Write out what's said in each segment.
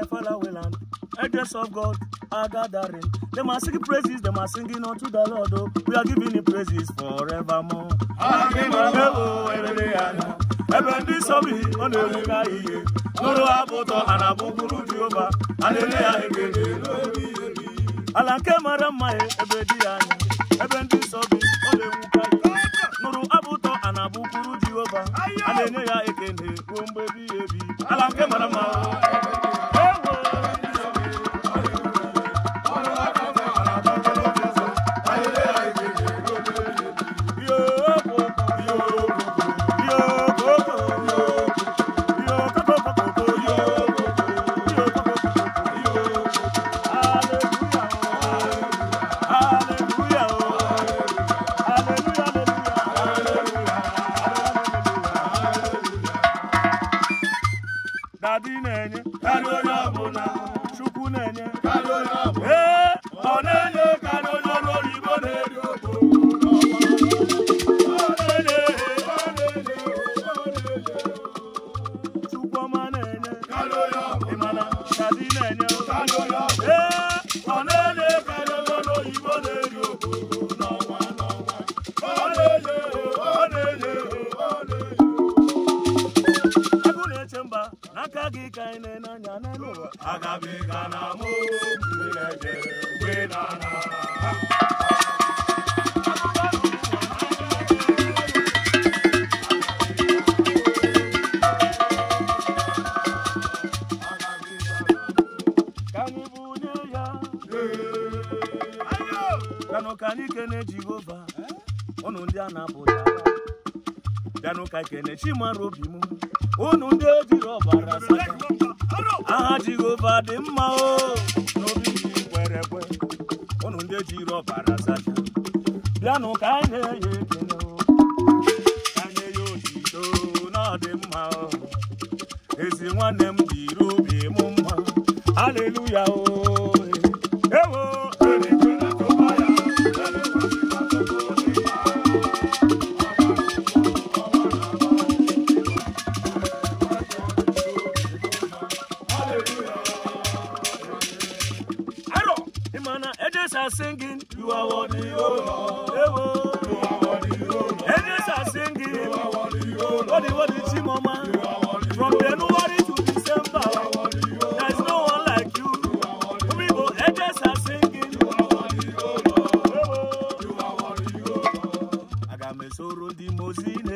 the fallow land. Angels of God are gathering. They are singing praises, they are singing unto the Lord. Oh. We are giving him praises forevermore. Ebe ndị nsọ bi ọ na-ewuga ihe n'ụlọ abụ ụtọ ebe dị ya anya ebe ndị nsọ bi ọ na-ewuga ihe ya ekele ruo mgbe ebighị ebi ala nke mara kadi na-enye kada onye ọbụla chukwu na-enye kada onye ọbụla ee ọ na-enye kada onye ọrụ oyibo na-eri Chukwuma na-enye, Kadị na-enye, Kadị na-enye. ịga ine na mụ Chineke na ka anyị kene Jehova ụnụ ndị a na-apụta ga ka kene chimara obi m unu ndị ejiri ọbara aha jehova dị mma o n'obi kwere ekwe unu ndị ejiri ọbara zaja bịanụ ka anyị na-enye ekele ka anyị ya otito na ọ mma o ezi nwanne m jiri obi m mma are singing, you are worthy, O Lord. You are worthy, O Lord. Angels are singing, you are worthy, O Lord. Worthy, worthy, Chimoma. You are worthy, From January to December, you are worthy, There's no one like you. You are worthy, angels are singing, you are worthy, O Lord. You are worthy, O Lord. I got Agamesoro di Mozina.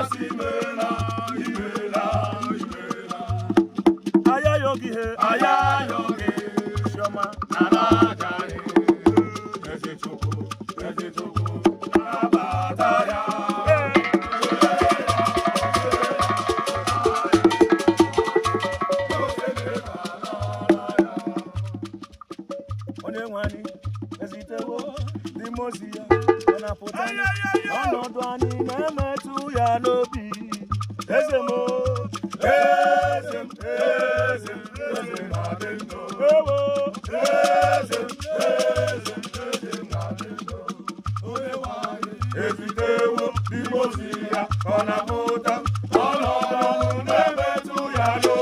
asị imela imela imela ayayogi he ayayogi chioma ezitewo ndị mozi ya ọ na-apụta ọnọdụ anyị na-emetụ ya no, eze m eze m eze m eze m na ezitewo ndị mozi ya na-apụta ọnọdụ na-emetụ ya